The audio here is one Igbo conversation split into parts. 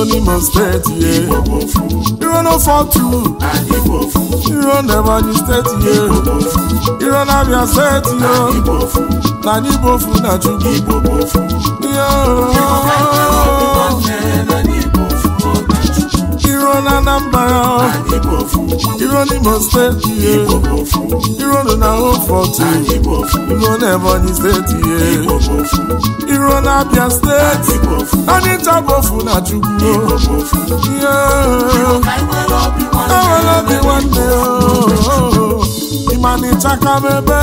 n'Imo steeti ye iro no iro n'Ebonyi steeti ye iro n'Abia steeti yo na anyị bofu na Chukwu iro n'Anambra iro n'Imo steeti ihe iro na Oforto iro na Ebonyi steeti ihe iro na Abia steeti anyị ntabofu na Chukwu ihe enwere obi nwanne ịma na ịchaka m ebe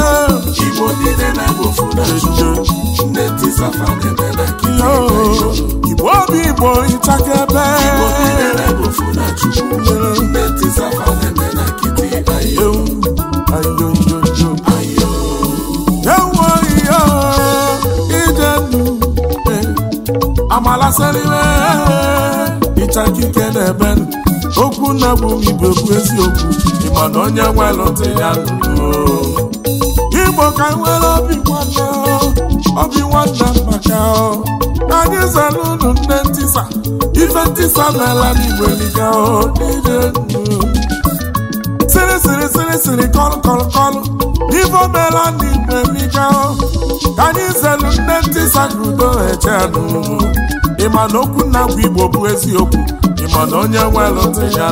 igbo obi igbo ịchaka ebe amalasịrịwe ịchakike n'ebe okwu na bụ ibe okwu eziokwu onye nwelụtụ ya igbo ka nwere obi nwanne obi nwanna maka anyị unu nne ntịsa. ọtịsa n'ala n'igbo eliga sịrị siri siri siri kọlụ kọlụ kọlụ ibo meela n'igbo eliga ka anyị zelu nne ntịsa ka eche n'ụlọ ịma na okwu nna bụ igbo bụ eziokwu ịma na onye nwelụ ntị ya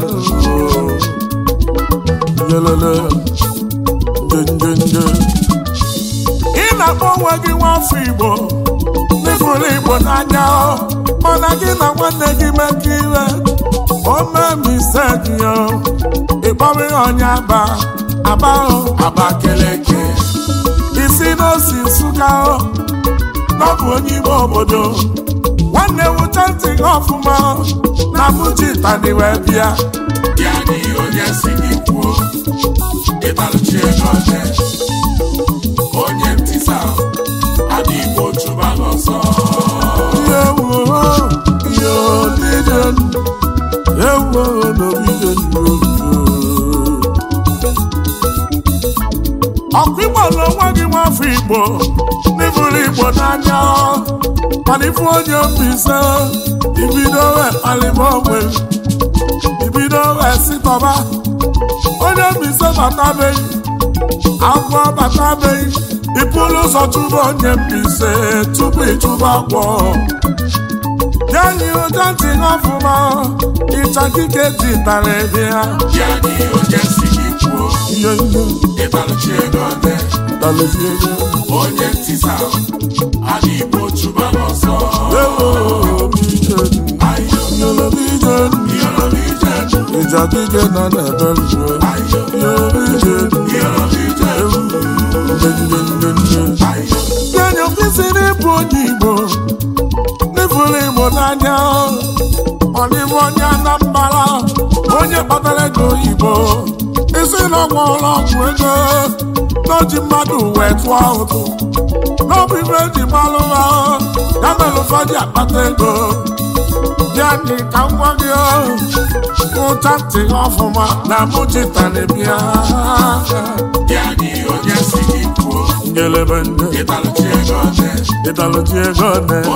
ị na-akpọ onwe gị nwa afọ igbo ịfụrụ Igbo n'anya mana gị na nwanne gị iwe. o mekọ ire omemisedio ịkpọrọ ihe ọnya aba aba Abakeleke isi n'osi Nsụka n'ọbụ onye ime obodo nwanne wụcha ntị gị ọfụma na bujitani wee bịa ya n'ihi onye si gị kwuo ịbalụchi ego ọjọọ ọkụ igbo nwa gị nwafọ igbo n'ịbụrụ igbo n'anya mana onye mbise ibido wee kpalịba ogbe ibido sitọba onye mbise batabeghị agwọ batabeghị ịpụrụ ụzọ chụba onye mbise tupu ịchụba agwọ ya dị ụja dị n'ọfụma ịcha dike dị tara ebe ha onye ntịsa adị igbo chụba n'ọsọ ịja dike nọ n'ebe njuo n'ime onye Anambra onye kpatara ego oyibo isi na ụlọ ọgwụ ego n'oji mmadụ wee tụọ ụtụ n'ọbụ ibe eji gbalụ ha ya mere ụfọdụ akpata ego ya dị ka ngwa gị ụcha ntị ọfụma na mụchitanebia elebe ego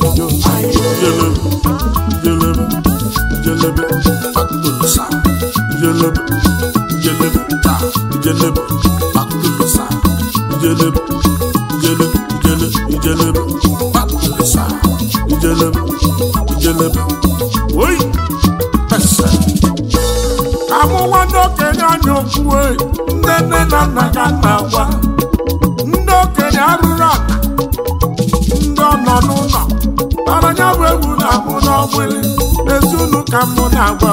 jelebe jelebe jelebe akụlụ sa jelebe jelebe ọ bụla amụwa n'okenye anya okwue nne nne na nna ga na-agwa ọgbụlị ezunu ka mụ na-agba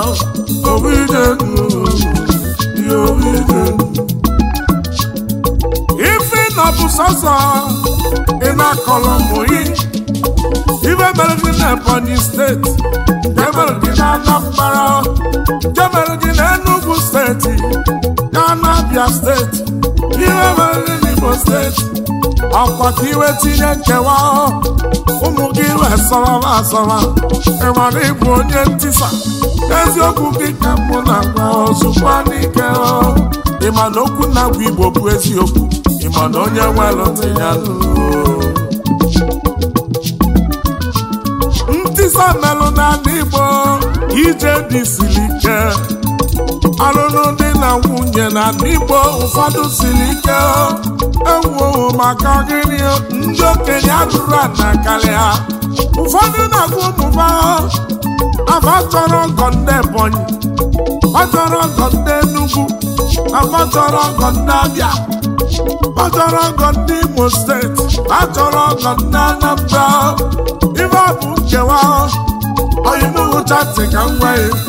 ife na ọ bụ sọsọ ị na-akọrọ ụmụ gị ibe mere na Ebonyi steeti jemere gị na Anambra na Enugu steeti Kanabia steeti Iwe mere gị Imo steeti ọkwaka ka iwe tinye nkewa ụmụ gị wee sọrọla asọrọ ịmara ịbụ onye ntisa eziokwu gị ka mụ na gwa ozugbo n'ike okwu na-agwa igbo bụ eziokwu ịma onye nwere ntị ya ntisa melụ n'ala igbo ije dị siri ike alụlụ na nwunye na n'igbo ụfọdụ siri ike ewuo maka gịnị ndị okenye ajụrụ ana karịa ụfọdụ na-agwa ụmụba afọ chọrọ ọgọ ndị Ebonyi ọ chọrọ ọgọ ndị Enugu afọ chọrọ ọgọ ndị Abịa ọ chọrọ ọgọ ndị Imo steeti Achọrọ ọgọ ndị Anambra ife ọ bụ nkewa oyibo hụchatị ka m ya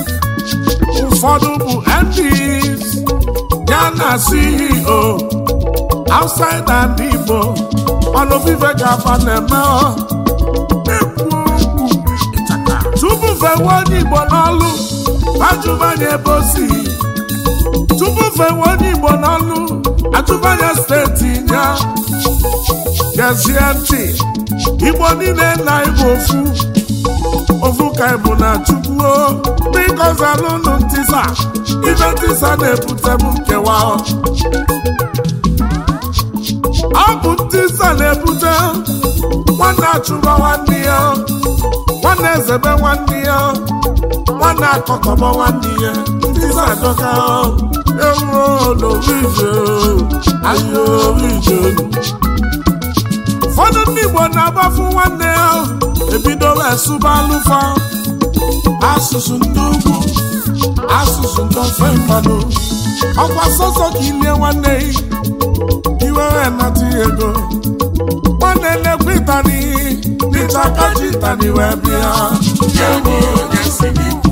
ụfọdụ bụ MDs ya na CEO outside and Igbo ọnụ vive ga-aba na-eme tupu fewe onye Igbo n'ọlụ ajụbanye ebe osi tupu fewe onye Igbo n'ọlụ atụbanye steeti ya gezie ntị Igbo niile na Igbo ofu asụsụ ka bụ na chukwuo biko zalụnụ ntisa ibe ntisa na-ebute bụ nkewa ọ bụ ntisa na-ebute nwanne achụba nwanne ya nwanne ezebe nwanne ya nwanne akọkọba nwanne ya ntisa adọka ewuo n'orije ije orije ụfọdụ ndị Igbo na-agbafu nwanne ya ebidola asụba asụsụ ndị ugwu asụsụ ndị ofe mmadụ ọkwa sọsọ ka ilie nwanne iwere nata ego nwanne na-ekwe ịtani dịcha kaji ịtani wee bịa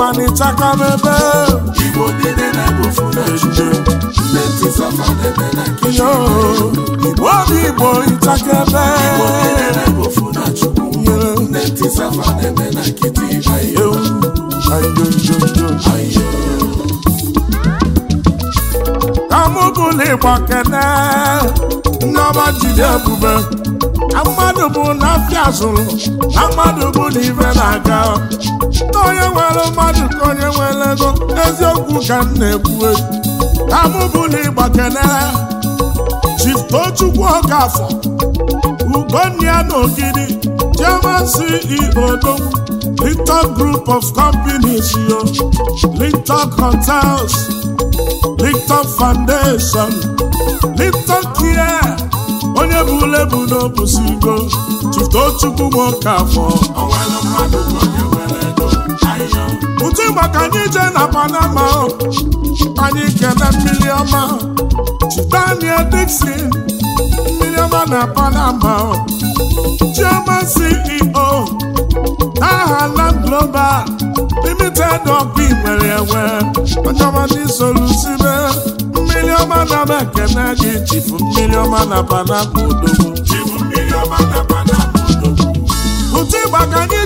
mana ịchaka m Igbo niile na-egbu na ebe Igbo na na Chukwu Nne ntisafa na-eme ayo ayo ayo ayo ka jide mmadụ na zụrụ na mmadụ bụ onye nwere mmadụ ka onye nwere ego eziokwu ka m na-ekwue amụbụla ịgba kenere Chiftochukwu Okafọ Ugonia na Ogidi German CEO Linton Group of Companies yo Linton Hotels Linton Foundation Linton Care onye bụ ule bụ n'obusigo Chiftochukwu Okafọ pụta ịgba ka anyị jee na Panama anyị kene mmiri ọma Daniel Dixon mmiri ọma na Panama Chioma CEO aha Land Global Limited ọbụ nwere enwe onye ọma ndị solusibe mmiri ọma na m ekene gị chifu mmiri ọma na Panama odogwu chifu mmiri ọma na Panama odogwu anyị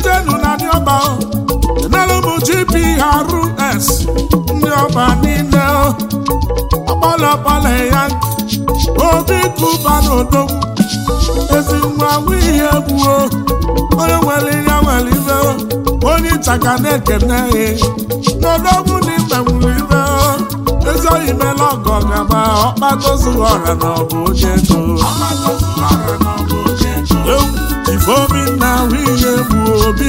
KRS ndị ọba niile ọkpọlọkpọlọ ya obi kụba n'udo ezi nwa ihe egbuo onye nwere ihe nwere ibe onye ịchaka na-ekene ya n'odogwu na ibe nwere ibe ezi oyi mela ọgọ gaba ọra na ọbụ onye ego ifeobi ahụ ihe obi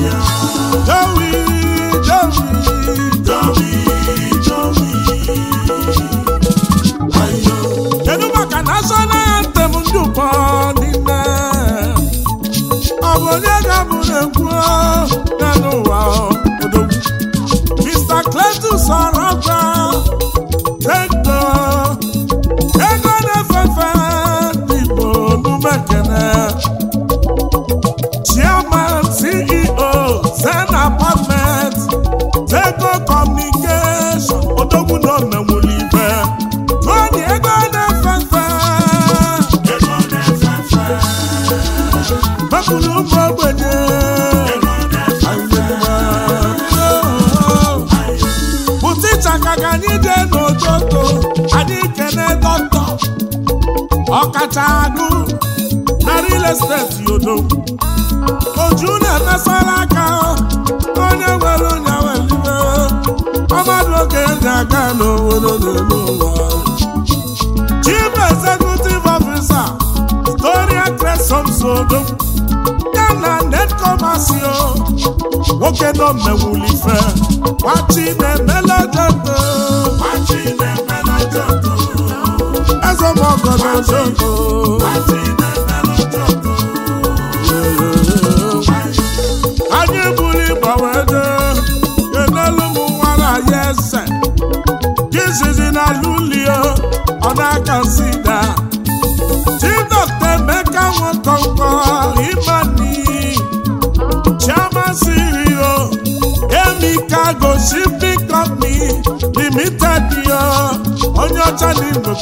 yeah Lagos steeti odo oju na-emesara aka onye nwere onye welibe ọmadụ oge ndị aga n'obodo na-eme ụwa Chief Executive Officer Victoria Cresomso odo ya na netkomasio nwoke nọ mmewulife machi na-emelejede machi na-emelejede eze mọgọ na zogo consider Chief Dr. Emeka Nwankwo Imani Chairman CEO Emeka Goshiping Company Limited yo onye ọcha na igwe